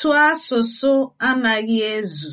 Otu asụsụ anaghị ezu